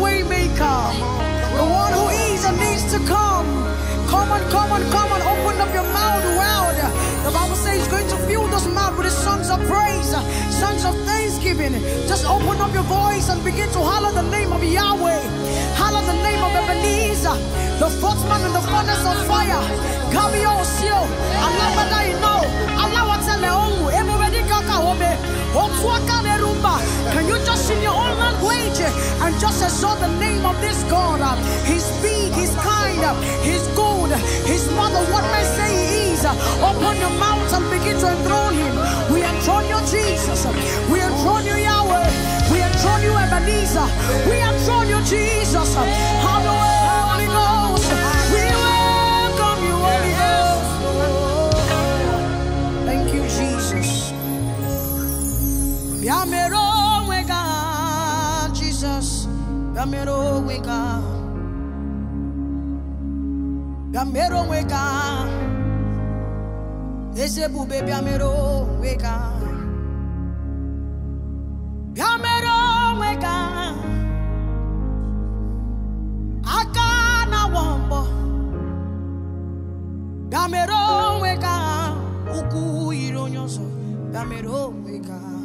waymaker, the one who is and needs to come. Come on, come on, come on, open up your mouth wide. The Bible says he's going to fill this mouth with his songs of praise, songs of thanksgiving. Just open up your voice and begin to holler the name of Yahweh. Holler the name of Ebenezer, the footman man in the furnace of fire. Come, your seal can you just in your own language and just exalt the name of this God he's big he's kind he's good he's mother what may say he is open your mouth and begin to enthrone him we enthrone you Jesus we enthrone you Yahweh we enthrone you Ebenezer we enthrone you Jesus Gamero weka Gamero weka Ese bube biamero weka Biamero weka Akana na wombo Gamero weka Uku ironyoso Gamero weka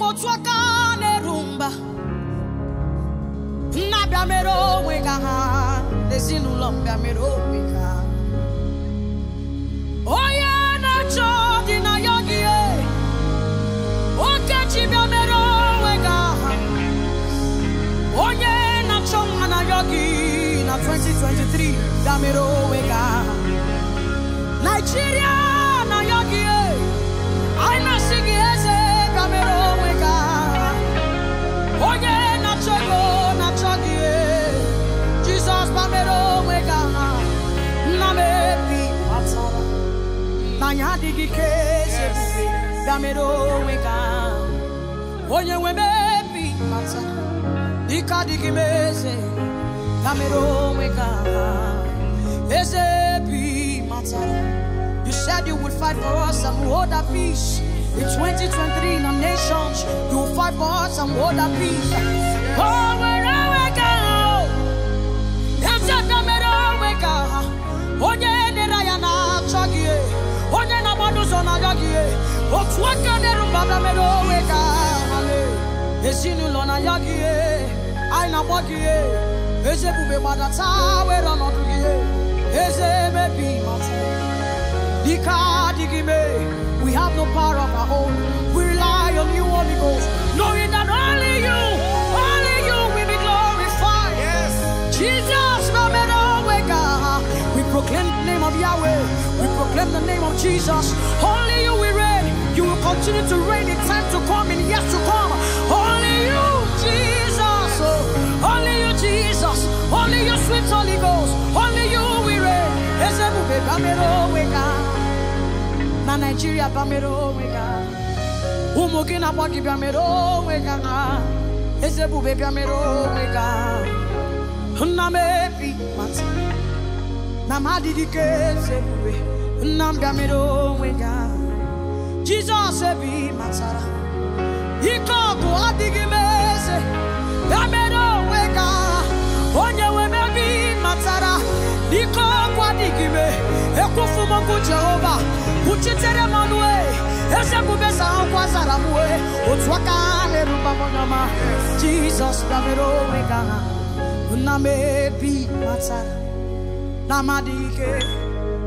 kotwa ka na-erumba nna bịa mere onwe ka ha ezinụlọ mbịa mere onwe ka na-achọ na ya gị okechi bịa mere onwe ha onye na-achọ na yogi na 2023 bịa mere onwe ka Nigeria onye mata bi mata You said you would fight for us and hold our peace. In 2023 in our nations, you will fight for us and hold our peace. Always. Oh, we have no power of our own we rely on you holy ghost knowing that only you only you will be glorified yes jesus baba onwe ka we proclaim the name of yahweh we proclaim the name of jesus only you we reign continue to rain. in time to come and yes to come. Only you, Jesus. Oh, only you, Jesus. Only Your sweet Holy Ghost. Only you, we reign. Ezebube Bamero Wega. Na Nigeria Bamero Wega. Ụmụ gị na-agba gị bịamero Wega. Ezebube bịamero Wega. Nna mati. ebi mata. Na m adịghị ka ezebube. Nna m bịamero Wega. Jizọs ebe matara ike ọgụ I m eze ya mere onwe ka onye nwe m ebe matara ike ọgụ adịghị m ekwufu m okwu Jehova kwuchitere m ọnụ eze bubesa akwụkwọ zara m wee otu aka na-erubamnyama Jizọs ya mere onwe ka nna m ebi matara na amadị ike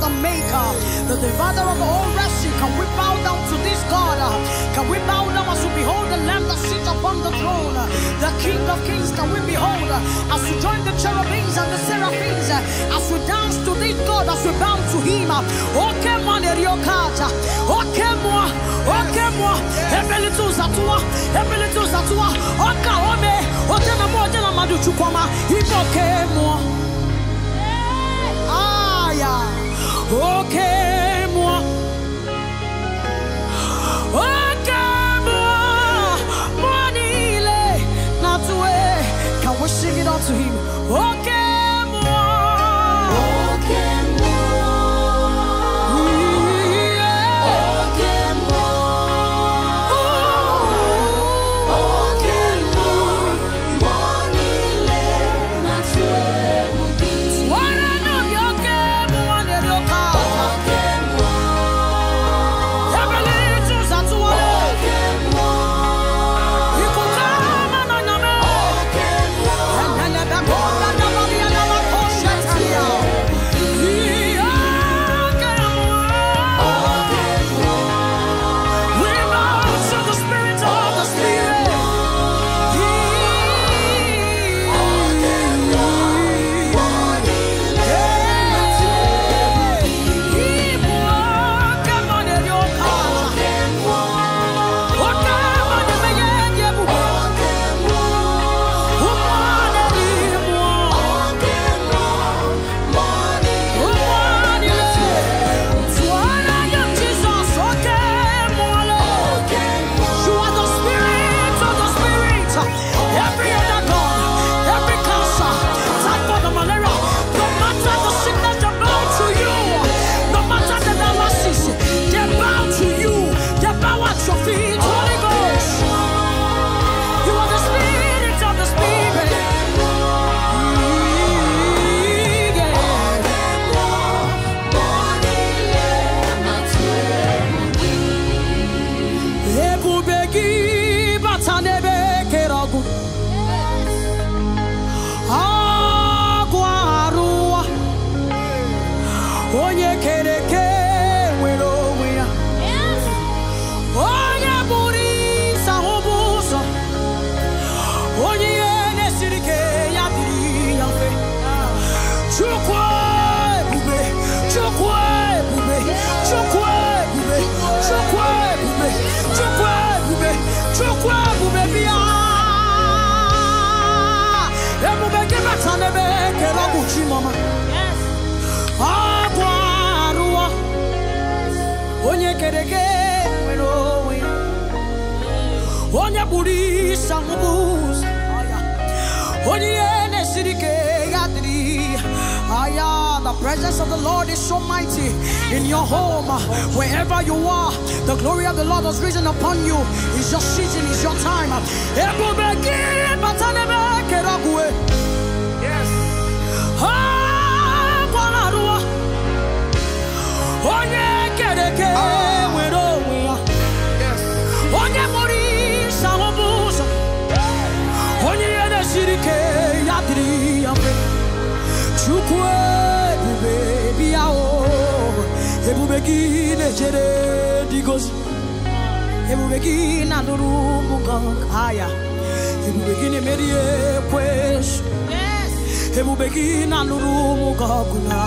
the maker, the divider of all rescue. Can we bow down to this God? Can we bow down as we behold the Lamb that sits upon the throne? The King of Kings, can we behold as we join the cherubims and the seraphims, as we dance to this God, as we bow to Him? Okay, man, Eriokata. Okay, moi. Okay, moi. Ebele tu zatua. Ebele tu zatua. Oka ome. Ote na mo, ote na madu chukoma. Iboke moi. onye onye na-esiri ya dịrị Aya, the presence of the Lord is so mighty in your home, wherever you are. The glory of the Lord has risen upon you. It's your season, it's your time. Yes. Oh, Jou kwe pou bebi a ou E pou beki ne jere di gozi E pou beki na nuru mungang haya E pou beki ne merie kwes E pou beki na nuru mungang kuna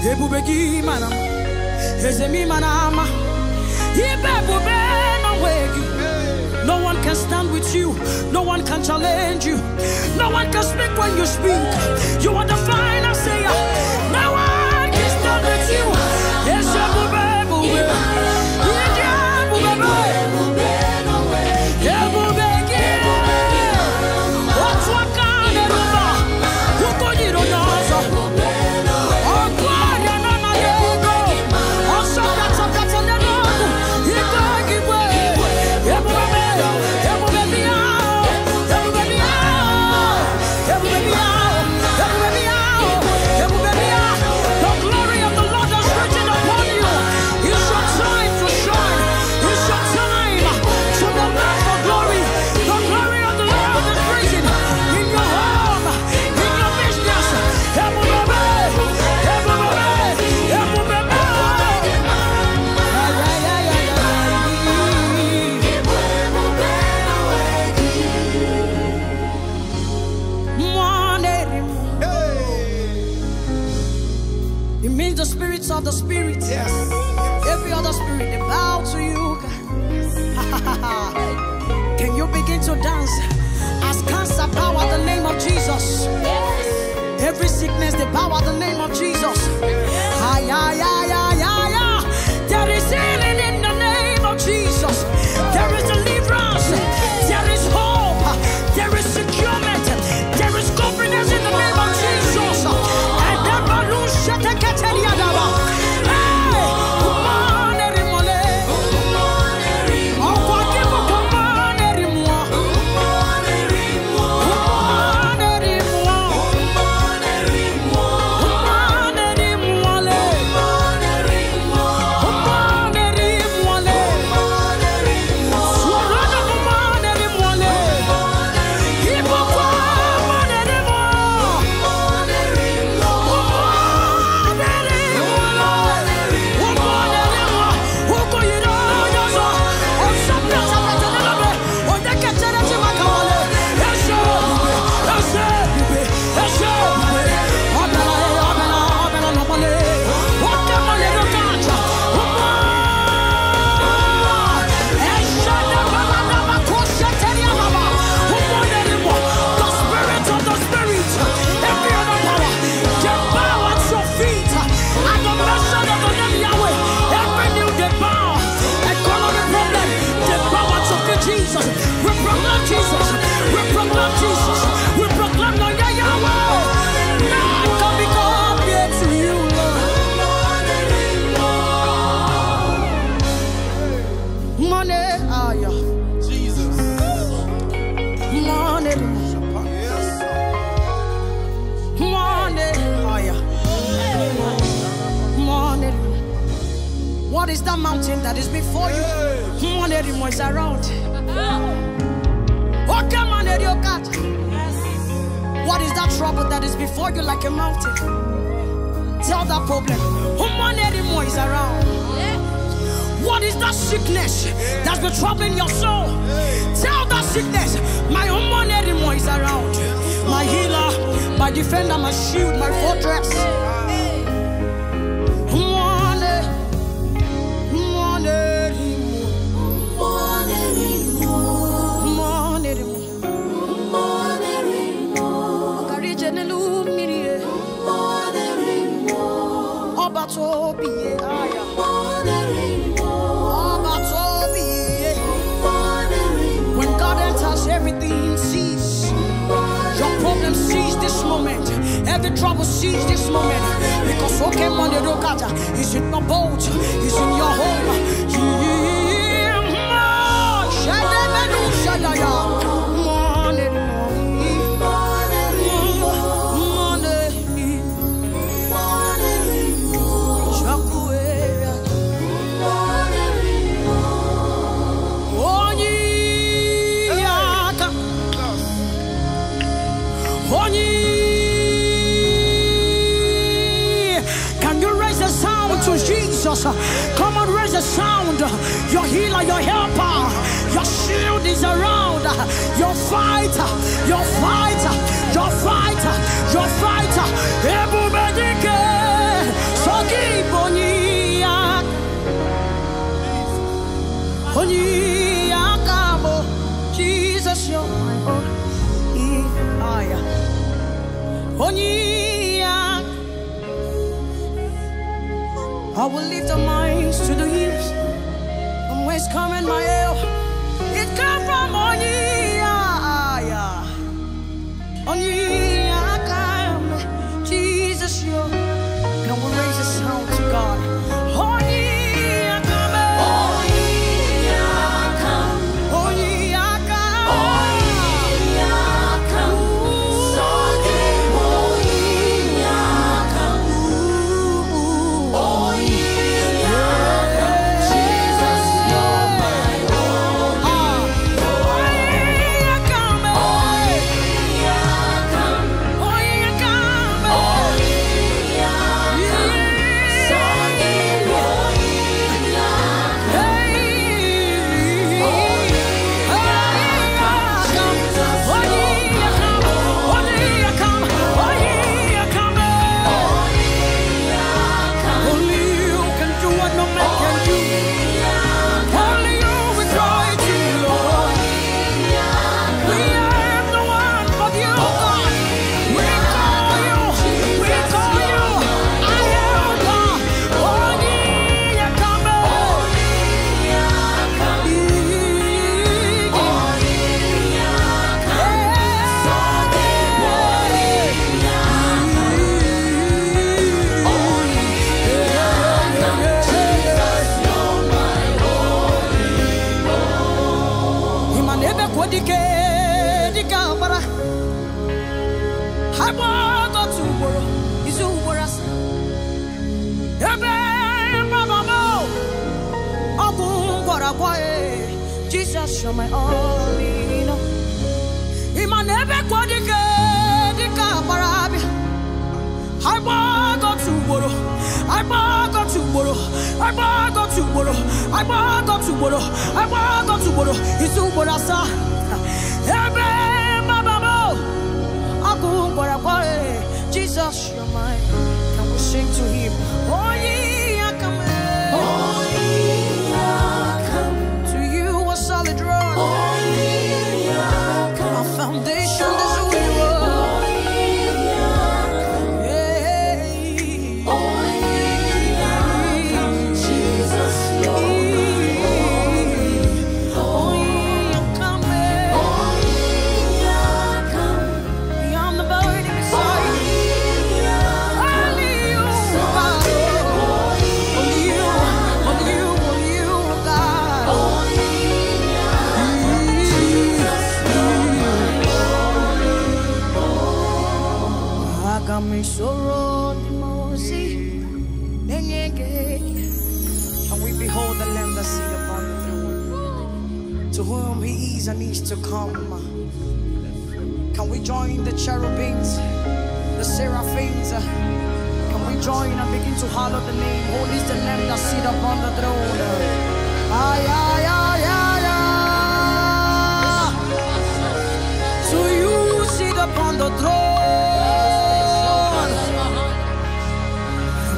E pou beki mana E zemi manama E pe pou be na wegi can stand with you. No one can challenge you. No one can speak when you speak. You are the final sayer. Now the power, the name of other problem. Human anymore is around. What is that sickness that's been troubling your soul? Tell that sickness, my human anymore is around. My healer, my defender, my shield, my fortress. trouble seize this moment. Because okay, Monday, Rokata is in your boat, is in your home. I will lift the minds to the hills. From whence coming my help? It comes from on you. Jesus, you're my all in all. Imanebe kwa dike, dika parabi, barabi. Aiba go to woro, aiba go to woro, aiba go to woro, aiba go to woro, aiba go to woro. Isu woro sa, ebe mama mo. Agu woro kwa Jesus, you're my. Can we sing to Him?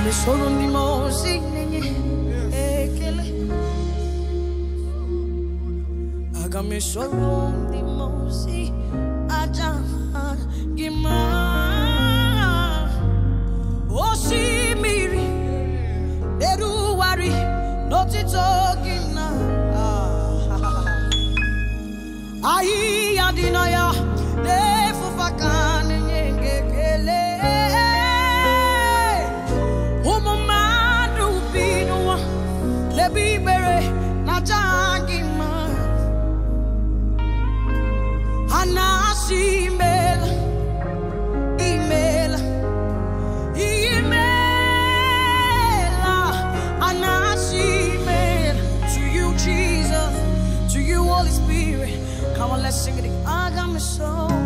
Come sono mimosi ekele Agame sono mimosi aja gima Osimiri eruwari n'otito gị na ahịhịa dị Ahi ya my soul.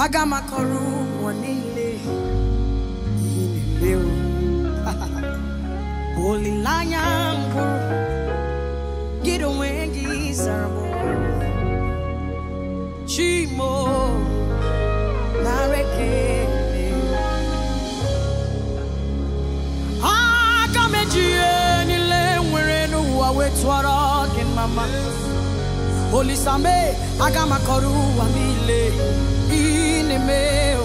aga m akọrọ ụmụ niile ihe na-emewo olileanya mbụ gị onwe gị zara m chimo na Areke. aga m eji ihe niile nwere n'ụwa wee tụọrọ gị mama olisame aga m akọrọ ụwa niile nimewa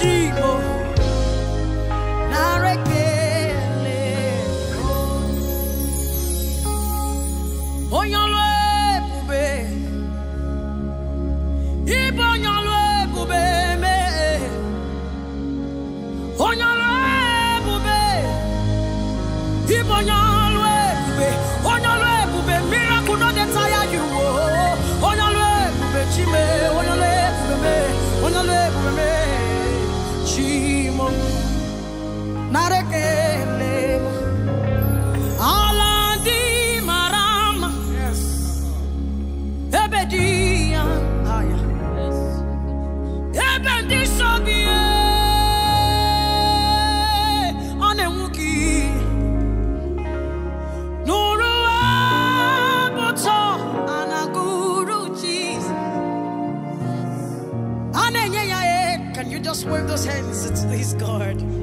cheap. wave those hands to his God.